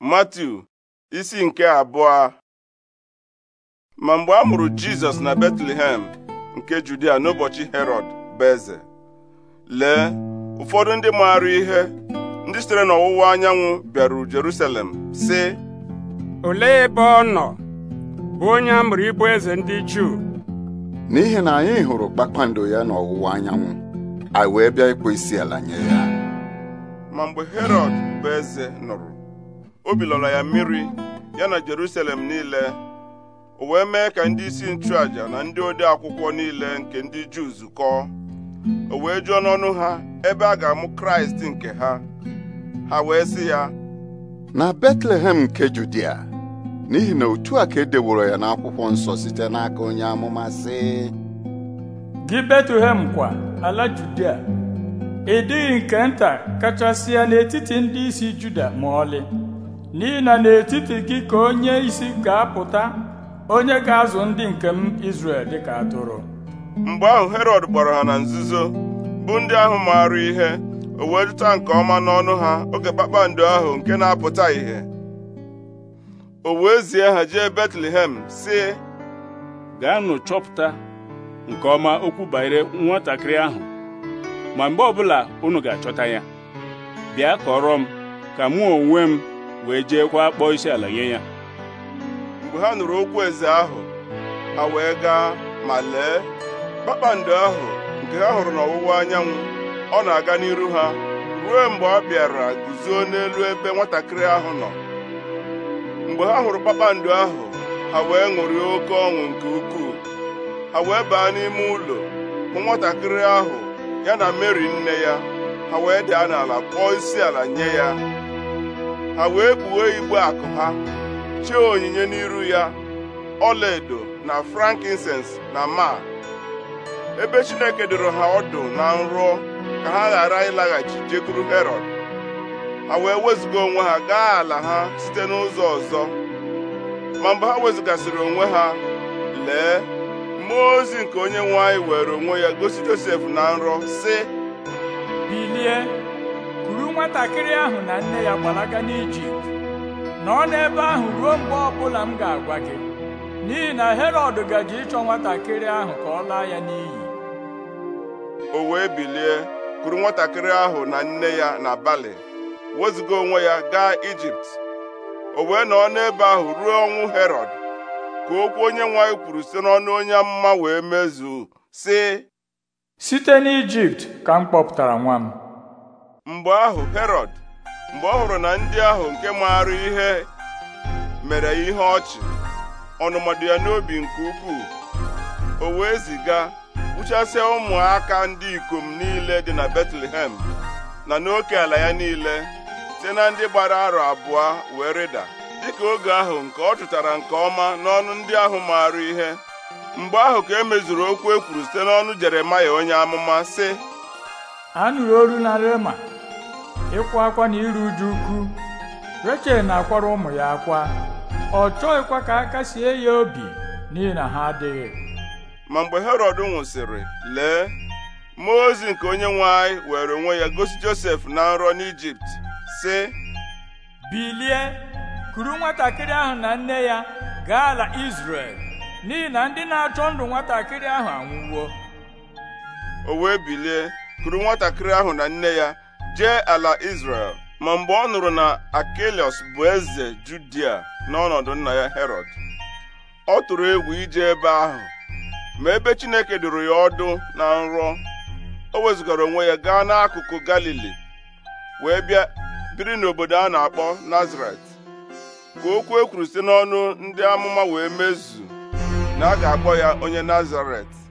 mati isi nke abụọ ma mgbe a mụrụ Jizọs na Betlehem nke Judia n'ụbọchị herod bụ eze lee ụfọdụ ndị maara ihe ndị sitere n'ọwụwa anyanwụ bịaru Jerusalem sị olee ebe ọ nọ bụ onye a mụrụ ịbụ eze ndị Juu n'ihi na anyị hụrụ kpakpando ya n'ọwụwa anyanwụ anyị wee bịa ịkpọ isi ala nye ya ma mgbe Herọd bụ eze nụrụ obi lọrọ ya mmiri ya na Jerusalem niile o wee mee ka ndị isi nchụaja na ndị ode akwụkwọ niile nke ndị Juu zukọọ o wee jụọ n'ọnụ ha ebe a ga-amụ Kraịst nke ha ha wee sị ya na Betlehem nke Judia n'ihi na otu a ka edeworo ya n'akwụkwọ nsọ site n'aka onye amụma sị gị Betlehem kwa ala Judia ị dịghị nke nta kachasị ya n'etiti ndị isi Juda ma ọlị n'ihi n'etiti gị ka onye isi ga-apụta onye ga-azụ ndị nke m Izrel dịka atụrụ mgbe ahụ herod gbara ha na nzuzo bụ ndị ahụ maara ihe o wee jụta nke ọma n'ọnụ ha oge kpakpando ahụ nke na-apụta ìhè o wee zie ha jee Betlehem sị gaanụ chọpụta nke ọma okwu banyere nwatakịrị ahụ ma mgbe ọbụla unu ga-achọta ya bịa kọrọ m ka mụ onwe m wee jeekwa kpọọ isi ala nye ya mgbe ha nụrụ okwu eze ahụ ha wee gaa ma lee kpakpando ahụ nke ha hụrụ n'ọwụwa anyanwụ ọ na-aga n'iru ha ruo mgbe ọ bịara guzo n'elu ebe nwatakịrị ahụ nọ mgbe ha hụrụ kpakpando ahụ ha wee ṅụrịa oke ọṅụ nke ukwuu ha wee baa n'ime ụlọ hụ nwatakịrị ahụ ya na Meri nne ya ha wee daa n'ala kpọọ isi ala nye ya ha wee kpughee igbe akụ ha chee onyinye n'iru ya ọlaedo na frankincense na ma ebe Chineke doro ha ọdụ na nrọ ka ha ghara ịlaghachi jekwuru herod a wee wezụga onwe ha gaa ala ha site n'ụzọ ọzọ ma mgbe ha wezụgasịrị onwe ha lee mmụọ ozi nke onye nwe anyị were onwe ya gosi Josef na nrọ si nwatakịrị ahụ na nne ya gbalaga n'ijipt nọ n'ebe ahụ ruo mgbe ọbụla m ga-agwa gị n'ihi na herọd gaji ịchọ nwatakịrị ahụ ka ọ laa ya n'iyi o wee bilie kuru nwatakịrị ahụ na nne ya n'abalị wezuga onwe ya gaa ijipt o wee nọ n'ebe ahụ ruo ọnwụ herọd ka okwu onye nwanyị kwuru site n'ọnụ onye mma wee mezuo sị site n'ijipt ka m kpọpụtara nwa m mgbe ahụ herọd mgbe ọ hụrụ na ndị ahụ nke maara ihe mere ihe ọchị ọnụmadị ya n'obi nke ukwuu o wee ziga kpuchasịa ụmụaka ndị ikom niile dị na betlehem na n'oke ala ya niile site na ndị gbara arọ abụọ wee rịda dịka oge ahụ nke ọ chụtara nke ọma n'ọnụ ndị ahụ maara ihe mgbe ahụ ka e mezuru okwu e kwuru site n'ọnụ jeremaya onye amụma si anụrụ olu na rema ịkwa akwa na iru uju ukwu rechel na-akwara ụmụ ya akwa ọ chọghịkwa ka aka sie ya obi n'ihi na ha adịghị ma mgbe herọd nwụsịrị lee mmụọ ozi nke onye nwe anyị were onwe ya gosi josef na nrọ n'ijipt sị bilie kuru nwatakịrị ahụ na nne ya gaa ala izrel n'ihi na ndị na-achọ ndụ nwatakịrị ahụ anwụwo o wee bilie kuru nwatakịrị ahụ na nne ya jee ala Izrel ma mgbe ọ nụrụ na Akelios bụ eze Judia n'ọnọdụ nna ya Herod ọ tụrụ egwu ije ebe ahụ ma ebe Chineke dụrụ ya ọdụ na nrọ o wezụgara onwe ya gaa n'akụkụ Galili wee bịa biri n'obodo a na-akpọ Nazaret ka okwu ekwuru site n'ọnụ ndị amụma wee mezu na a ga-akpọ ya onye Nazaret